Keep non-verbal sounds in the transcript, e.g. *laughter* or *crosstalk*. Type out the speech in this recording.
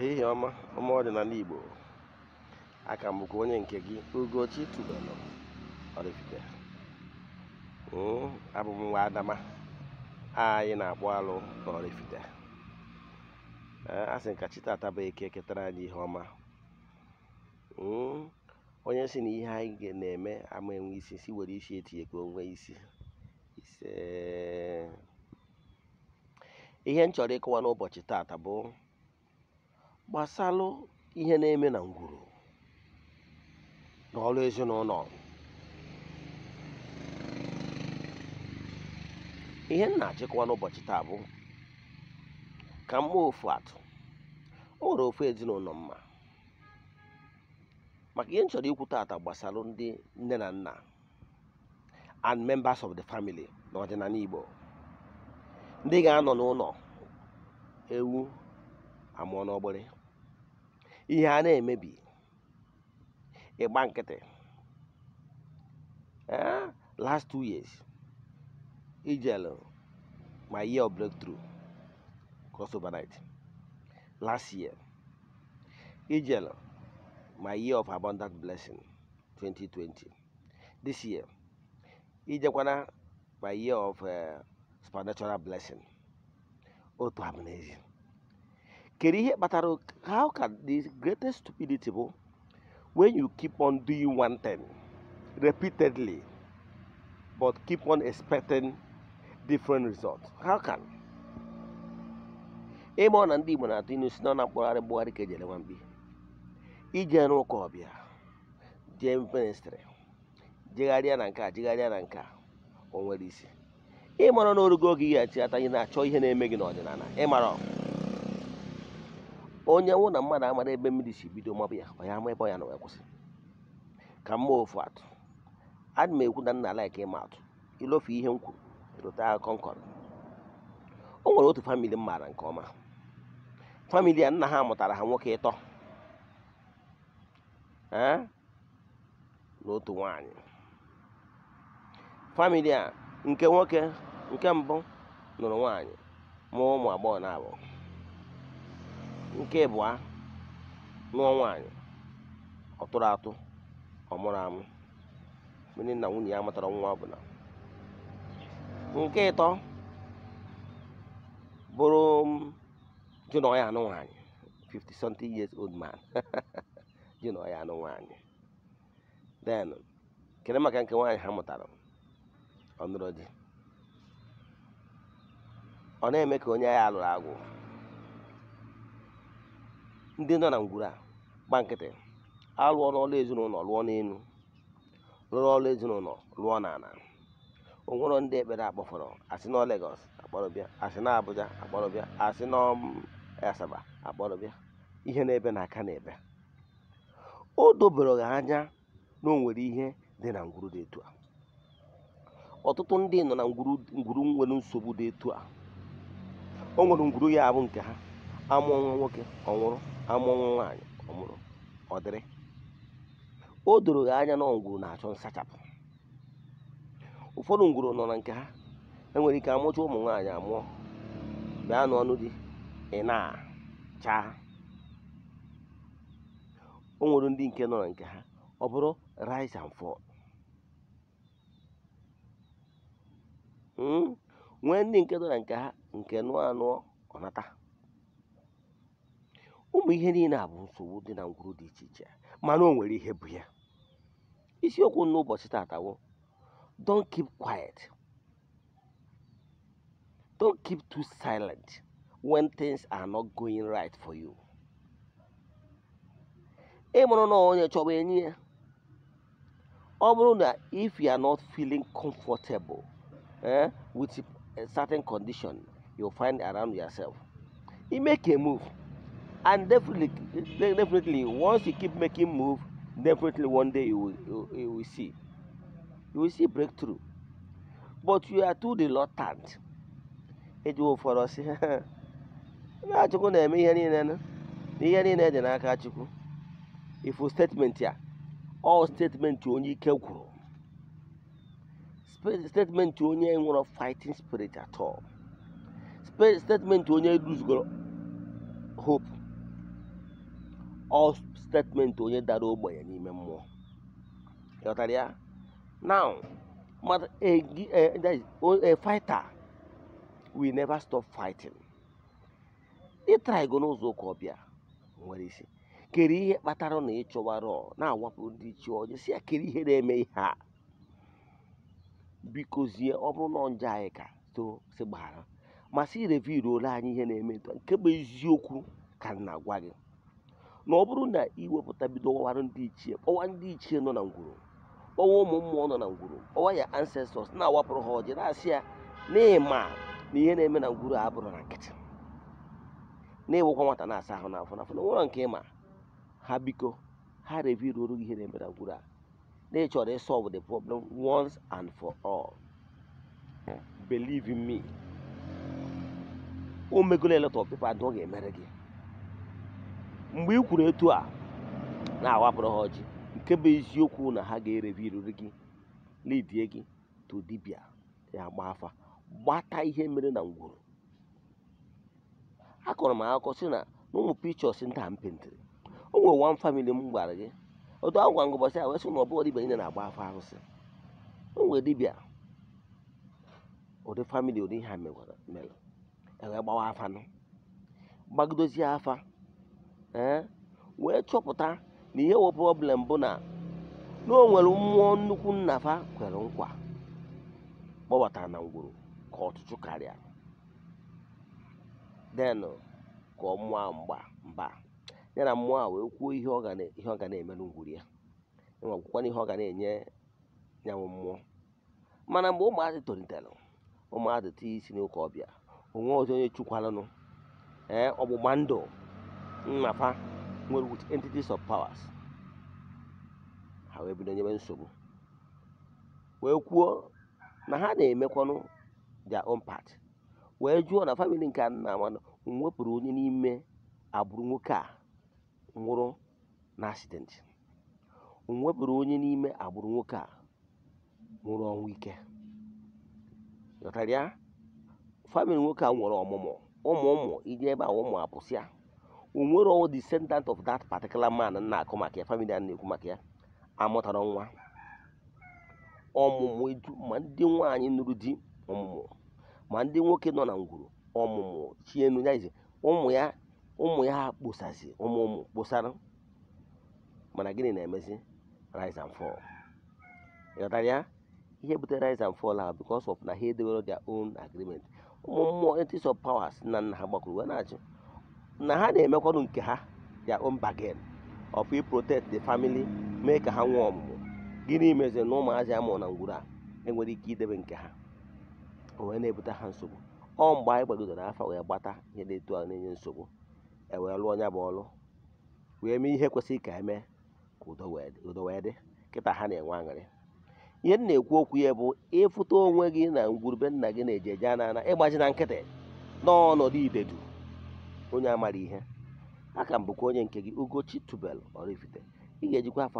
ehihie ọma ọma ọdịnala igbo aka m bụkwa onye nke gị ugochi tubelu Oraifite hmm, abụ m nwa adama anyị na-akpọ alụ na Oraifite eh, a sị ka chi tata bụ eke ketara anyị ihe ọma hmm, onye si na ihe anyị na-eme ama enwe isi si were isi etinye ka onwe isi ihe m chọrọ ịkọwa n'ụbọchị tata bụ gbàsalụ ihe na-eme na ngwuru n'ọrụ ezinụlọ ihe m na-achịkwa n'ụbọchị taa bụ ka m mee ofu atụ o nwere ofu ezinụlọ mma maka ihe m chọrọ ikwu tata gbasara ndị nne na nna and members of the family n'ọdịnala Igbo ndị ga-anọ n'ụlọ ewu amụọ n'ọgbịrị ihe a na-emebi ịgba nkịtị eh, last two years ijelu my year of breakthrough cross overnight last year ijelu my year of abundant blessing 2020 this year ijekwana my year of uh, supernatural blessing otu abụ n'ezi kedu ihe kpatara how can the greatest stupidity bụ when you keep on doing one thing repeatedly but keep on expecting different results how can ịma na ndị Igbo na-atụ inu si na na mkpọgharị mkpọgharị ka ejere nwamkpi ije rụ ọbịa jee jegharịa na nke a jegharịa na nke a o nwere isi ịmara na orugo oge ị ghachi ata ị na-achọ ihe na-eme gị n'ọdịnala ịmara onye nwụ na mmadụ amara ebe mmiri si bido mabụ ya ọ ya ama ebe ọ ya na wee kwụsị ka mma ofu atụ adị m ekwu na nna laiki ịma atụ ilofu ihe m kwuru rụta akụkọ nkọrọ o nwere otu famili m maara nke ọma famili a nna ha mụtara ha nwoke ịtọ na otu nwanyị famili a nke nwoke nke mbụ nụrụ nwaanyị mụọ ụmụ agbọghọ na abụọ nke ịbụa nụọ nwaanyị ọ tụrụ atụ ọmụrụ amụ onye na nwunye ya matara nwa ọbụla nke ịtọ bụrụ di na ya anụ nwaanyị 50 something years old man di *laughs* na ọya anụ nwaanyị den kere maka nke nwaanyị ha mụtara ọ nụrụ ọ na-eme ka onye agha alụrụ agwụ ndị nọ na ngwuru a gba nkịtị alụọ n'ọlụ ezinụlọ lụọ n'elu rụrụ ọlụ ezinụlọ lụọ n'ala onwero ndị ekpere akpọfọrọ asị na Lagos akpọrọbịa asị na Abuja akpọrọbịa asị na mm, Asaba akpọrọbịa ihe n'ebe na aka na-ebe o dobere ha anya na o nwere ihe dị na ngwuru dị etu a ọtụtụ ndị nọ na ngwuru ngwuru nwere nsogbu dị etu a o nwere ngwuru ya abụ nke ha amụọ nwa nwoke ọ nwụrụ amụnwụ nwaanyị ọmụrụ ọ dịrị o doro gị anya na ngwuru na-achọ nsachapụ ụfọdụ ngwuru nọ na nke ha enwere ike amụcha ụmụ nwaanyị amụọ bịa n'ọnụ dị ị na-acha onwere o nwere ndị nke nọ na nke ha ọ bụrụ rise and fall hmm? nwee ndị nke nọ na nke ha nke nụọ anụọ ọnata ụmụ ihe niile a bụ nsogbu dị na ngwuru dị iche iche mana o nwere ihe bụ ya isiokwu n'ụbọchị tatawo don keep quiet don keep too silent when things are not going right for you ị mụrụ na onye chọba enyi ya ọ bụrụ na if you are not feeling comfortable eh, with a certain condition you find around yourself you make a move And definitely, definitely, once you keep making move, definitely one day you will, you, you will see. You will see breakthrough. But you are too reluctant. Ejiwo fọrọ si Chukwu na-eme ihe niile na ihe niile dị statement here, all statement onye ike gwụrụ. Statement onye nwụrụ fighting spirit at all. Statement onye lose hope. ọ statement onye dara ogbenye n'ime mmụọ ịghọtara ya now a eh, eh, eh, fighter will never stop fighting ịtrago n'ụzọ ụka ọbịa nwere isi kere ihe kpatara na ịchọwara na-awapụ ndị chi ọjọọ si ya kere ihe na-eme ihe a bikozie ọ bụrụ na njọ anyị ka so si gbaghara masị irevi ruola anyị ihe na-eme nke bụ eziokwu ka m na-agwa gị na ọ bụrụ na iwepụta bido ọwara ndị ichie kpọwa ndị ichie nọ na ngwuru kpọwa ụmụ mmụọ nọ na ngwuru kpọwa ya ancestors na-awapụrụ ha ọjị na-asị ya na ihe na-eme na ngwuru a bụrụ na nkịtị na-ewekwa nwata na-asa ahụ n'afọ n'afọ na nwụrọ nke ịma ha biko ha reviruoro ihe na-eme na ngwuru a na ịchọrọ ịsolve the problem once and for all believe in me o megolo a pepa adụọ ga-emere gị mgbe ị kwuru etu a na-awapụrụ ha ọjị nke bụ eziokwu na ha ga-ereviriri gị lidie gị to dibịa ya gba afa gbata ihe mere na ngwuru kọrọ m akụkọ sị na n'ụmụ pichọs ndị a m o nwere wan famili m gwara gị otu agwa gwa ngụbọsị a wee na ọbụghị dibịa niile na-agba afa arụsị o nwere dibịa ụdị famili ụdị ihe a mere ewee gbawa gbagodozie afa ee wee chọpụta na ihe wụ problem bụ na na o nwere mmụọ nnukwu nnafa kwere nkwa kpọbatara na ngwuru ka ọtụtụ karịa den ka ọ mụọ mgba mba ya na mmụọ a wee kwuo ihe ọ ga na ya enwe na ihe ọ ga na-enye nyanwụ mmụọ mana mgbe ụmụazị tolitere ụmụazị tinye isi n'ụka ọbịa onwe ọzọ onye chukwalanụ ee ọgbụgba ndụ nnafa nwere with entities of powers ha wee bido nsogbu wee kwuo na ha na-emekwanụ their own part wee jụọ na famili nke nna amanụ wepụrụ onye n'ime agbụrụ nwoke a nwụrụ na accident onye n'ime agbụrụ nwoke a nwụrụ ọnwụ ike ghọtara ya nwoke a nwere ọmụmụ ụmụ ụmụ ije ebe a ụmụ apụsịa onwero descendant of that particular man na-akụ maka ya famili a na-ekwu maka ya amụtara nwa ọmụmụ edu ma ndị nwaanyị nụrụ di ọmụmụ ma ndị nwoke nọ na ngwuru ọmụmụ chienu ya ụmụ ya ụmụ ya kposazi ụmụ ụmụ kposara mana gịnị na-emezi rise and fall ịghọtara ya ihe butere rise and fall a because of na ha edewere their own agreement ụmụ mmụọ entities of powers na nna ha gbakwuru wee na-achị na ha na-emekwanụ nke ha ya ombagen bargain of protect the family mee ka ha nwee ọmụmụ gịnị meziri na ụmụazị amụ na ngwuru a enwere ike idebe nke ha o wee na-ebute ha nsogbu ọ mgbe anyị gbagidoro afa wee gbata ihe na-etu ahụ na-enye nsogbu ewee lụọ ọnya bụ ọlụ wee mee ihe kwesịrị ka emee ka udo wee dị kịta ha na-enwe aṅụrị ihe m na-ekwu okwu ya bụ ịfụta onwe gị na ngwurube nna gị na-eje eje anana ịgbaji na nkịtị n'ọnọdụ idedu onye amara ihe aka m bụkwa onye nke gị Ugochi Tubelu Oraifite ị ga-ejikwa afọ